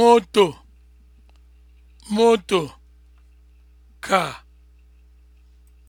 moto moto ka